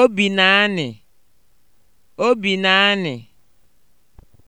Obi Obinanị Obinanị